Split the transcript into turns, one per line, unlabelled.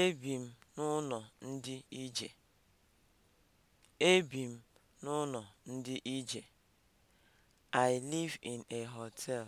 Ebi m n'ụlọ ndị ije. I live in a hotel.